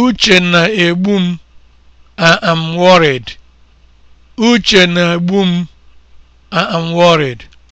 Uche na-egbu m. I am worried. m. am